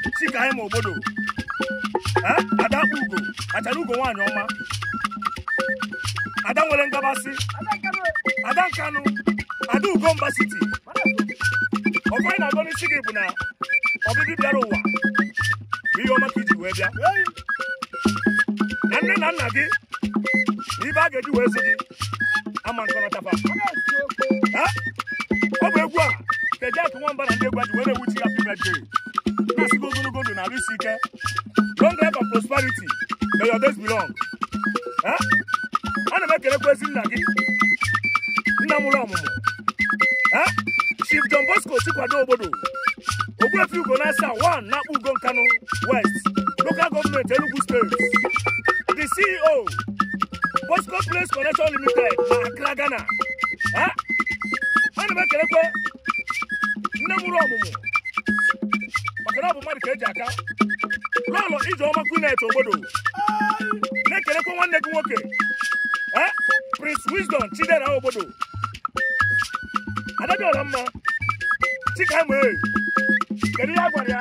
Chikaima Ogbodo Adakpa Ugo achara Ugo nwaanyị ọma Ada nwere ngabasị Ada Nkanụ Ada Ugomba City ọkụ anyị na-agọ n'isi gị bụ na ọbịbị bịara ụwa bụ ihe ọma ka iji wee bịa na nne na nna gị na ibe a ga-eji wee si gị ama nkọrọtaba ọ bụ egwu a kedu akụ nwamba na ndị egwu aji were ewu chi ya pibedri na-asịgo ogologo na arụ isi ike long life and prosperity may your days be long m gị nna mụrụ Chief John Bosco Chikwado obodo West Local Government Enugu the CEO Bosco Place Connection Limited na Ghana m mụrụ ọmụmụ ka eji aka lọlọ ije ọma kunet obodo na-ekelekwa nwanne gị nwoke e, Prince Wisdom Chidera obodo adabịọla mma chikama kedu ihe a gwara ya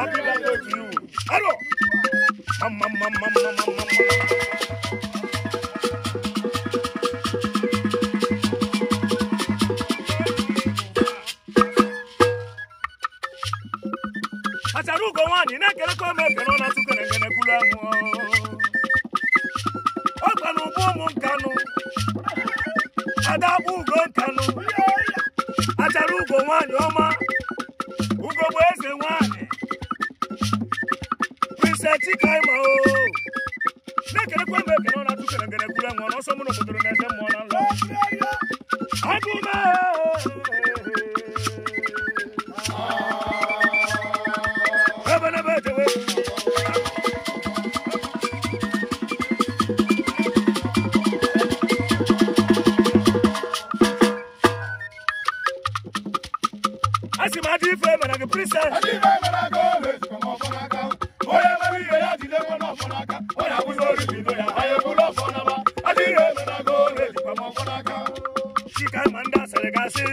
abịla otu iwu arọ mamamamamamamama acharugo nwaanyị na-ekelekọ m ekele ọ na-atụkọ na engenekulu amụ ọ no n'ụgbọ kanu, adabu go kanu. nkanụ acharugo nwaanyị ọma ugo bụ eze nwaanyị prince chikaima o na-ekelekwa m ekele ọ na-atụkọ na engenekulu amụ n'ọsọ m n'obodo na-efe mmụọ na nlọ agụme asị ma adị ife mere gị prisa adị ife mere aka ọ na-esi ma ọfọ n'aka onye mere ihe ya jide nwa n'ọfọ n'aka ọ na-abụzi ori bido ya ha ya eburu ọfọ n'ama adị ire mere aka ọ na-esi ma ọfọ n'aka chika ma ndị asịrị gasị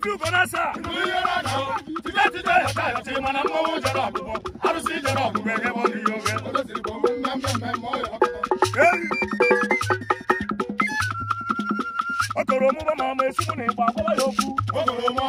ojú bọ́násà. ìlú yọrọ náà tìjẹ́ tìjẹ́ ìyàtà àti ìmọ̀nà mọ́wó jọrọ àbúbọ̀ arúsí jọrọ àbúbọ̀ ẹgbẹ́ wọn ni yóò olóṣèlú bọ̀ wọ́n mẹ́mẹ́mẹ́ mọ́ ọ̀yọ́ ọkọ̀ ọ̀rọ̀ mú bá máa mọ esúmù ní ìpàkọ́lá yòókù. ọkọ̀ ọ̀rọ̀ mú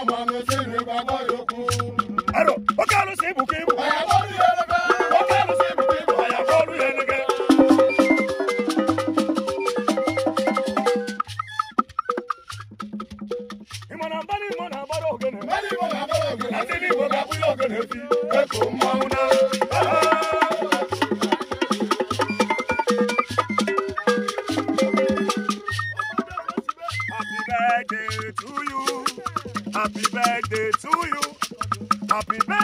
birthday to you. Happy birthday.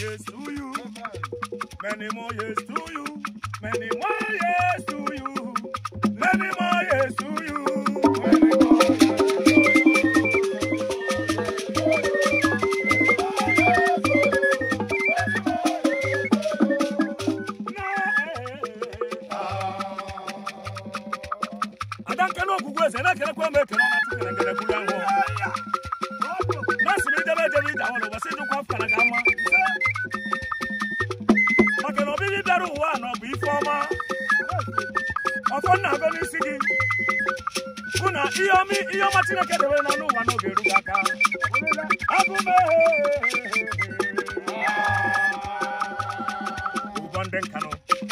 years to you. Many more years to you. Many more years to you. Many more. afọ nna agọ n'isi gị hụ na ihe ọma ihe ọma chineke debere n'ọnụ ụwa n'oge eru gị aka abụme ụgwọ ndị nkanụ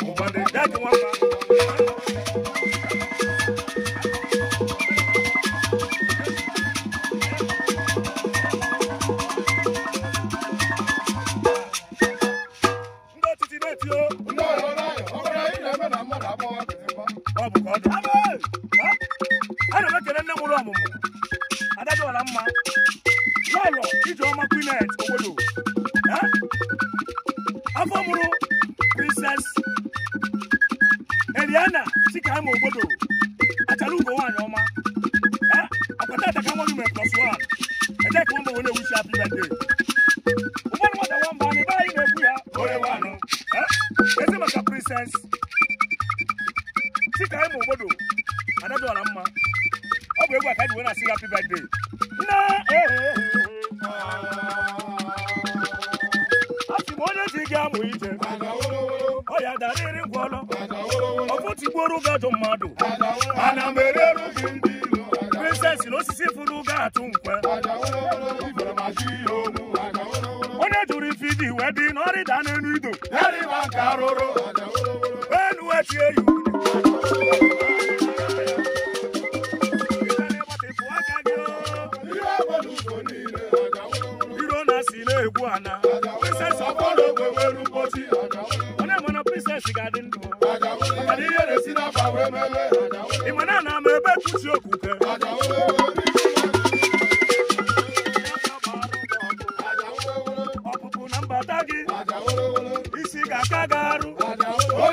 ụgwọ ndị dajụ nwamba afọ mụrụ princess Eliana Chikama obodo achara ugo nwaanyị ọma akwata ataka nwa gị mere plus one ede ka ụmụ onye wuchi apị bede nwata mmadụ nwamba anyị ebe anyị na-ekwu ya onye nwanụ ezi maka princess Chikama obodo anadola mma ọ bụ egwu aka ji wee na-asị ya apị bede gị amụ ije ọ ya ngwọlọ ọfụtigbuoro gị mmadụ ana m gị ndị ilo na osisi furu gị atụ nkwe onye jụrụ ife wee dị na n'elu ido enu echi eyi iro na si na-egwu ana ga-adị ị ma na na ama ebe tusi okwuke ọpụpụ na mbata gị isi ga-aka gị arụ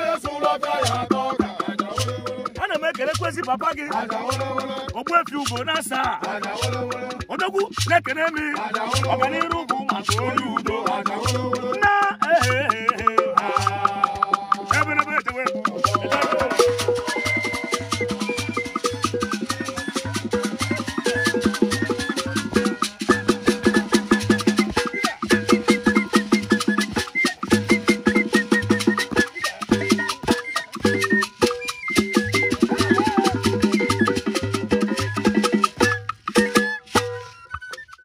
ana m ekelekwezi papa gị ogbuefi ugo na asaa na ekele m ọganiru bụ maka onye udo